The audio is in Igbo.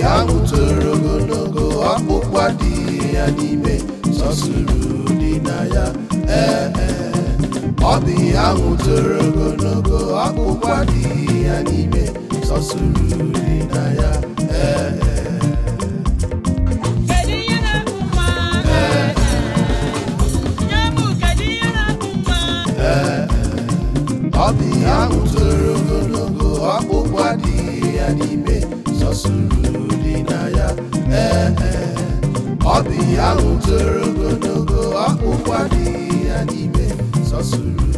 ha butoro ogologo ọkpụkpụ adịghị ya n'ime sọsụrụ dị na ya ee ọ bụ ihe ogologo ọkpụkpụ adịghị ya n'ime sọsụrụ dị na ya ee ọ ogologo ya n'ime ọ bụ ihe ahụ toro ogologo ọkpụkpa dị ya n'ime sọsuru